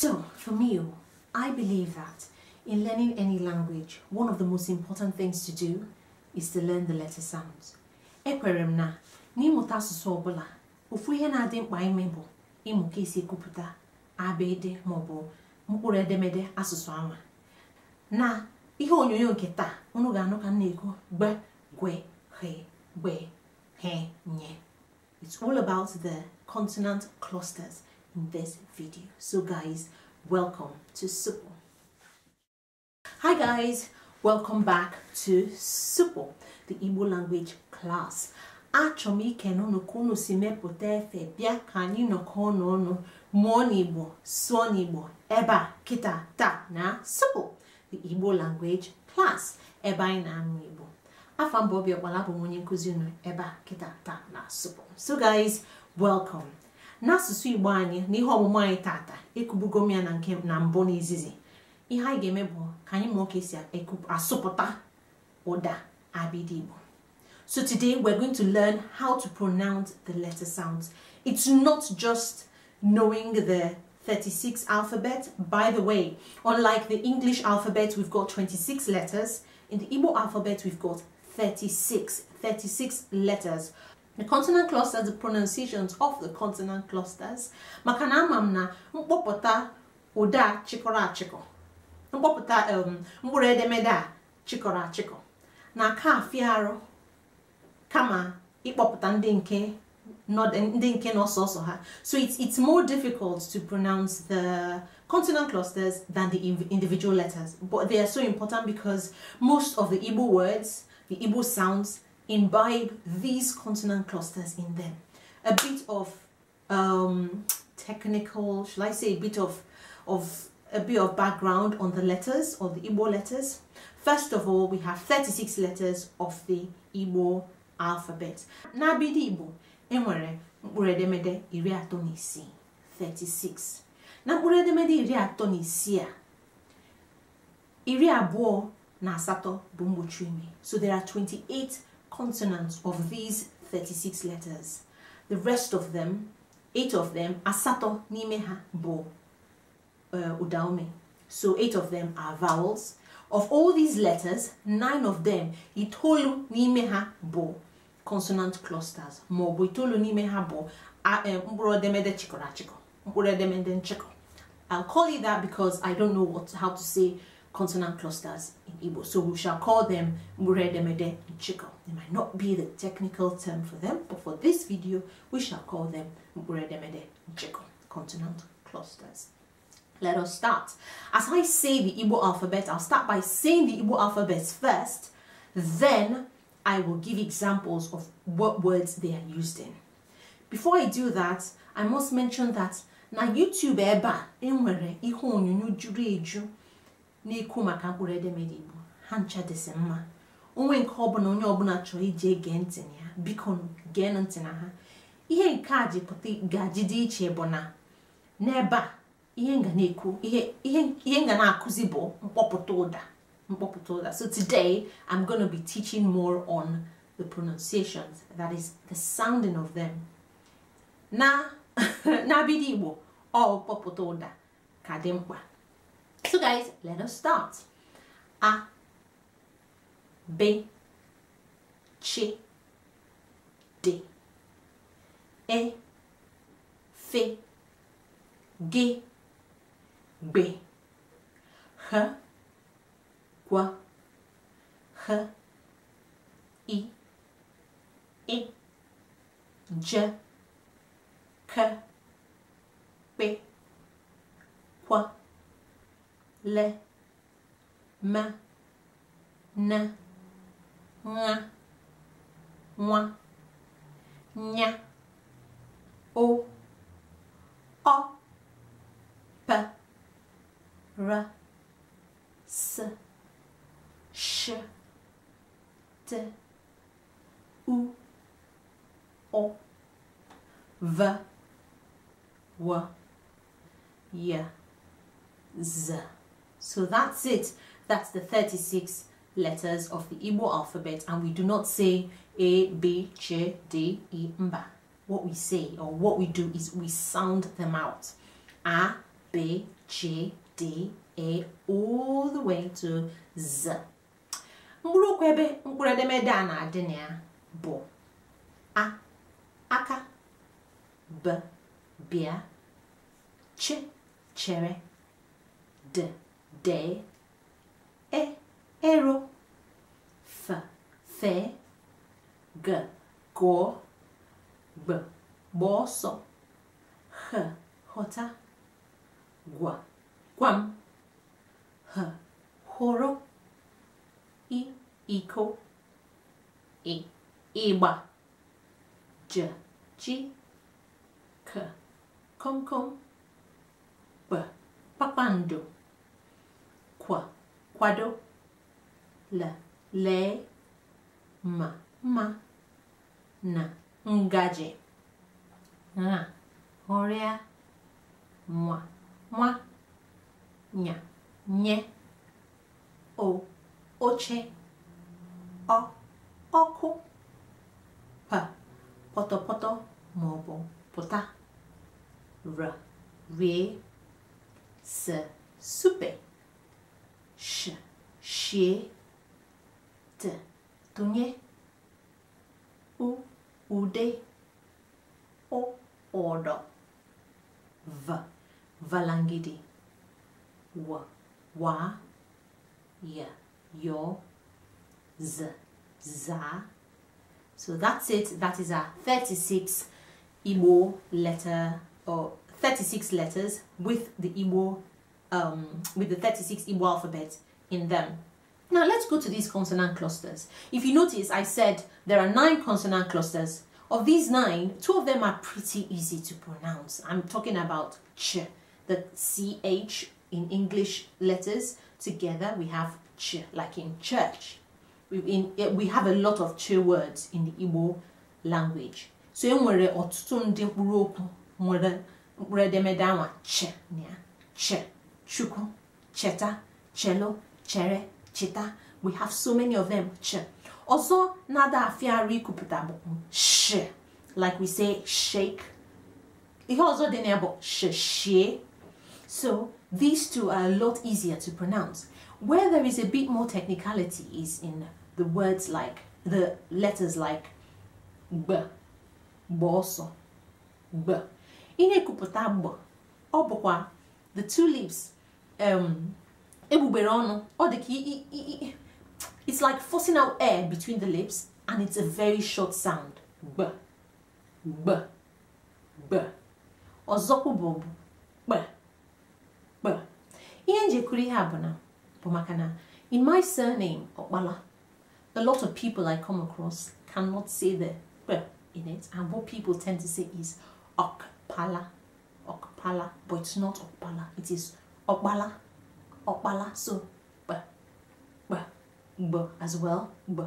So, for me, oh, I believe that in learning any language, one of the most important things to do is to learn the letter sounds. Ekwere m na n'ịmụta asụsụ ọbụla, ofu ihe na-adị mkpa ime ịmụ ka kuputa, abede mobo, maọbụ mkpụrụ edemede asụsụ anwa. Na ihe onyonyo nke taa, unu ga-anụ ka gwe he gbe he nye. It's all about the consonant clusters this video so guys welcome to Supo hi guys welcome back to Supo the Igbo language class achọrọ m ike n'ụnụ ka si mepụta efe bịa ka anyị nọkọ ọnụ ọnụ mụọ n'Igbo sụọ kịta ta na Supo the Igbo language class eba anyị na-amụ Igbo afọ mbụ obi ọkpala bụ m onye nkụzi kịta ta na Supo so guys welcome n'asụsụ igbo anyị na ihe ọmụmụ anyị tata ekubugo m ya na nke na mbụ ihe anyị ga-eme bụ ka anyị asụpụta ụda abịdị igbo so today we're going to learn how to pronounce the letter sounds it's not just knowing the 36 alphabet. By the way, unlike the English alphabet, we've got 26 letters. In the Igbo alphabet, we've got 36, 36 letters. The consonant clusters, the pronunciations of the consonant clusters, maka na ama m na mkpọpụta ụda a chịkọrọ um, demeda chikora chiko achịkọ ka fiaro kama ịkpọpụta ndinke not ndinke nọ sọsọ ha so it's, it's more difficult to pronounce the consonant clusters than the individual letters but they are so important because most of the Igbo words the Igbo sounds imbibe these consonant clusters in them. A bit of um, technical, shall I say a bit of, of a bit of background on the letters, on the Igbo letters. First of all, we have 36 letters of the Igbo alphabet. bidi Igbo, enwere mkpụrụ edemede iri atọ na 36. Na mkpụrụ edemede iri atọ na isii a, iri abụọ na asatọ bụ mgbochi So there are 28 consonants of these 36 letters. The rest of them, eight of them, asato nimeha bo udaome. Uh, so eight of them are vowels. Of all these letters, nine of them, itolu nimeha bo, consonant clusters, mobu itolu nimeha bo, eh, mburodemede chikora chiko, mburodemede chiko. I'll call it that because I don't know what how to say consonant clusters in Igbo. So we shall call them Mure, Demede, and Chiko. They might not be the technical term for them, but for this video, we shall call them Mure, Demede, and Chiko, consonant clusters. Let us start. As I say the Igbo alphabet, I'll start by saying the Igbo alphabets first, then I will give examples of what words they are used in. Before I do that, I must mention that na YouTube eba enwere ihe onyonyo na-ekwu maka mkpụrụ edemede igbo ha ncha dịsị mma onwe nke ọbụla onye ọbụla chọrọ ije gee ntị na ya biko gee ntị na ha ihe nke a ji gaji dị iche bụ na n'ebe a ihe nga na-ekwu ihe nga na-akụzi bụ mkpọpụta ụda mkpọpụta ụda so today i'm going to be teaching more on the pronunciations that is the sounding of them na na igbo ọ kpọpụta ụda ka dị mkpa So guys, let us start. A, B, C, D, E, F, G, B, H, Q, H, I, I, J, K, P, Q, le, ma, ne, moi, o, o, p, r, s, ch, t, u o, v, w, y, z. So that's it. That's the 36 letters of the Igbo alphabet and we do not say A B J D E Mba. What we say or what we do is we sound them out. A, B, all the way to Z. Mkpụrụ okwu ebe mkpụrụ edemede ya A, aka, B, bịa, Ch, chere, D. de, e, ero, f, fe, g, go, b, boso, h, hota, gua, quam, h, horo, i, iko, i, iba, j, chi, k, kom kom, b, papando. quoi. Quado. La. le. Ma. Ma. Na. Ngaje. Na. Orea. Moi. Moi. Nya. Nye. O. Oche. O. Oku. Pa. Poto poto. Mobo. Pota. R. Rie. S, soupe. sh, she, t, tunye, u, ude, o, odo, v, valangidi, w, wa, y, yo, z, za. So that's it. That is our 36 Igbo letter or 36 letters with the Igbo um, with the 36 Igbo alphabet in them. Now let's go to these consonant clusters. If you notice, I said there are nine consonant clusters. Of these nine, two of them are pretty easy to pronounce. I'm talking about ch, the ch in English letters. Together we have ch, like in church. We, in, eh, we have a lot of ch words in the Igbo language. So e nwere ọtụtụ ndị mkpụrụ okwu nwere edemede anwa ch, ch. Chuko, Cheta, Chelo, Chere, Cheta. We have so many of them. Ch. Also, nada afiari kupita sh. Like we say, shake. It also the name sh So these two are a lot easier to pronounce. Where there is a bit more technicality is in the words like the letters like b, boso, b. Ine kupita b. Obokwa, the two leaves um, egbugbere it's like forcing out air between the lips and it's a very short sound b b b ọzọkwụ bụ b b ihe njekuru ihe a bụ na bụ maka na in my surname ọkpala a lot of people I come across cannot say the b in it and what people tend to say is ọkpala ọkpala but it's not ọkpala it is Okbala, okbala. So b, b, b as well. B.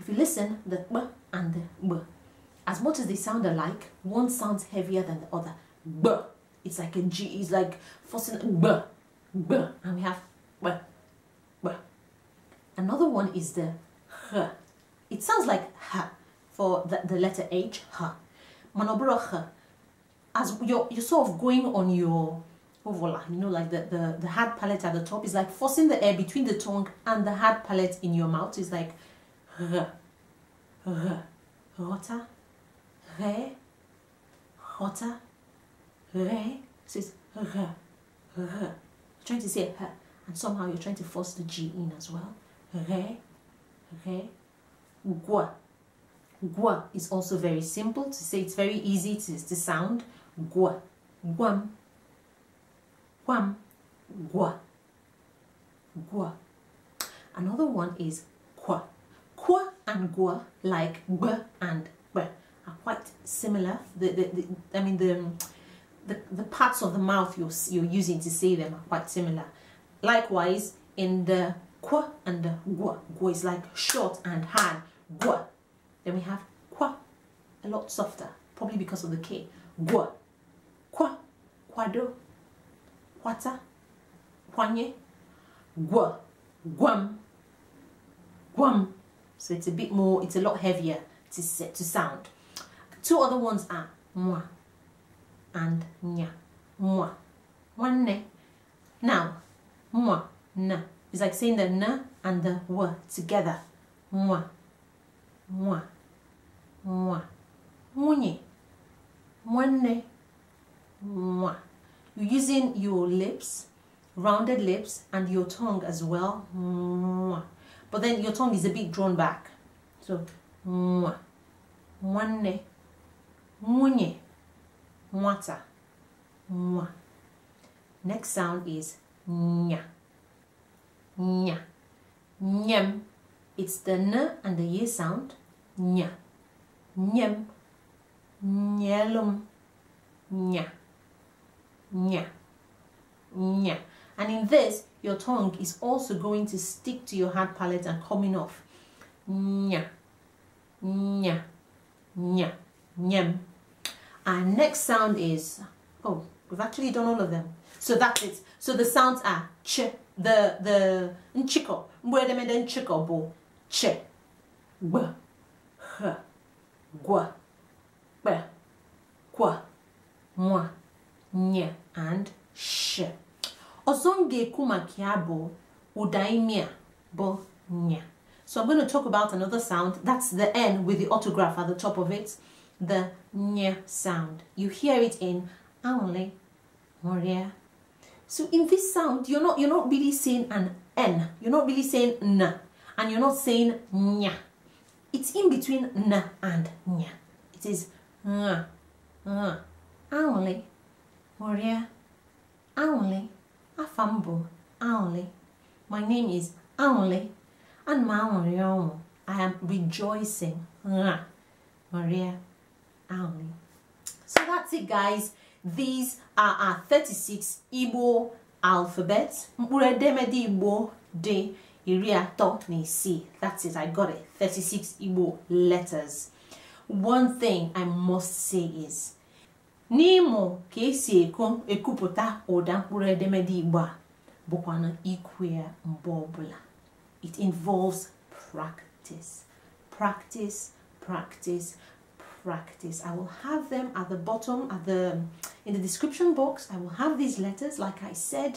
If you listen, the b and the b, as much as they sound alike, one sounds heavier than the other. B. It's like a G. It's like forcing b, b, and we have b, b. Another one is the h. It sounds like h for the, the letter H. H. Manobro h. As you're, you're sort of going on your Oh, voila, you know, like the, the, the hard palate at the top is like forcing the air between the tongue and the hard palate in your mouth. It's like r, r, rota, re, rota, re. So it's r, r. trying to say r, and somehow you're trying to force the G in as well. Re, re, gua. Gua is also very simple to say. It's very easy to, to sound. Gua, guam, Guam, gua, gua. Another one is qua. Qua and gua, like b and b, are quite similar. The, the, the I mean, the, the, the parts of the mouth you're, you're using to say them are quite similar. Likewise, in the qua and the gua, gua is like short and hard, gua. Then we have qua, a lot softer, probably because of the k, gua, qua, quado, kwata kwanye gwa gwam gwam so it's a bit more it's a lot heavier to to sound two other ones are mwa and nya mwa one now mwa na it's like saying the na and the w together mwa mwa mwa munye mwanne mwa you're using your lips, rounded lips, and your tongue as well. But then your tongue is a bit drawn back. So, mwanne, munye, mwata, mwa. Next sound is nya, nya, nyem. It's the n and the y sound. Nya, nyem, nyelum, nya nya, nya. And in this, your tongue is also going to stick to your hard palate and coming off. Nya, nya, nya, nyem. Our next sound is, oh, we've actually done all of them. So that's it. So the sounds are ch, the, the, nchiko, mwedemede nchiko bo, ch, b, h, gwa, b, kwa, mwa ny, and sh. Ọzọ m ga-ekwu maka ya bụ ụda imi a bụ nya. So I'm going to talk about another sound. That's the N with the autograph at the top of it. The nya sound. You hear it in Angle, Moria. So in this sound, you're not, you're not really saying an N. You're not really saying N. And you're not saying nya. It's in between N and nya. It is N. N. Maria Aonle Afambo Aonle. My name is Aonle and Maonrionwo. I am rejoicing. Maria Aonle. So that's it guys. These are our 36 Igbo alphabets. Mkpuredemede Igbo de Iria atọ na That's it, I got it. 36 Igbo letters. One thing I must say is n'ịmụ ka esi ekupụta ụda mkpụrụ edemede igbo a bụkwanụ ikwu ya mgbe ọbụla it involves practice practice practice practice i will have them at the bottom at the in the description box i will have these letters like i said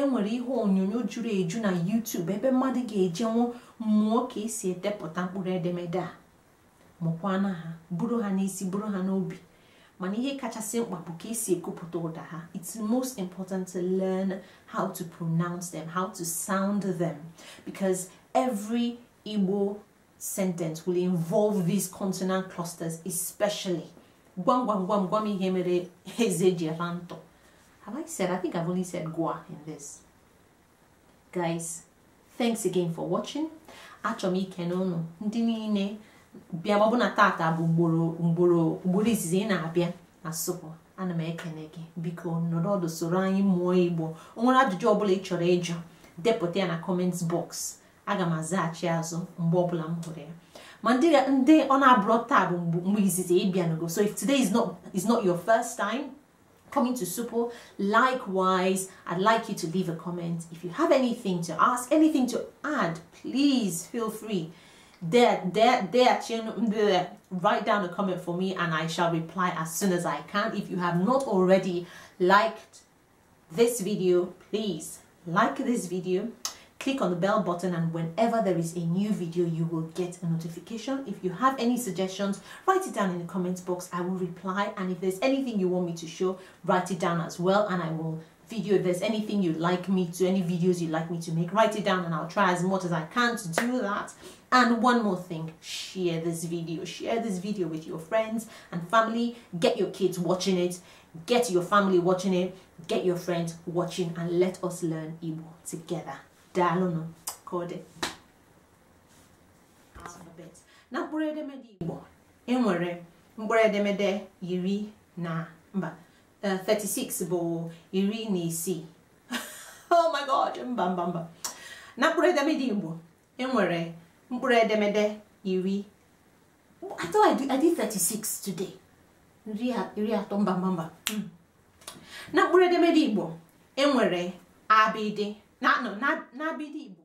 enwere ihe onyonyo juru eju na youtube ebe mmadụ ga-ejenwu mmụọ ka esi edepụta mkpụrụ edemede a mụkwana ha buru ha n'isi buru ha n'obi mana ihe kachasị mkpa bụ ka esi ekwupụta ụda ha it's most important to learn how to pronounce them how to sound them because every Igbo sentence will involve these consonant clusters especially gwam gwam gwam gwam ihe mere eze ji ala have I said I think I've only said gwa in this guys thanks again for watching achọm ikene unu ndị niile bịaba na tata bụ ugboro ugboro izizi ị na-abịa na sụpụ ana m ekele gị biko nọrọ ọdụ soro anyị mụọ igbo o nwere ajụjụ ọbụla ị chọrọ ịjụ depụta ya na kọment bọks aga m azaghachi azụ mgbe ọbụla m hụrụ ya ma ndị ọ na-abụrọ taa bụ mgbe izizi ịbịanugo so if today is not, is not your first time coming to Supo. Likewise, I'd like you to leave a comment. If you have anything to ask, anything to add, please feel free there, there, there, there. Write down a comment for me and I shall reply as soon as I can. If you have not already liked this video, please like this video, click on the bell button and whenever there is a new video, you will get a notification. If you have any suggestions, write it down in the comments box. I will reply and if there's anything you want me to show, write it down as well and I will video if there's anything you'd like me to any videos you'd like me to make write it down and i'll try as much as i can to do that and one more thing share this video share this video with your friends and family get your kids watching it get your family watching it get your friends watching and let us learn Igbo together daalụnụ kode na mkpụrụ edemede Igbo enwere mkpụrụ edemede iri na mba 36 bụ iri na isii oh my god mba mba mba na mkpụrụ edemede igbo enwere mkpụrụ edemede iri atọ I 36 today iri atọ mba mba mba hmm. na mkpụrụ edemede igbo enwere abịdị na abịdị igbo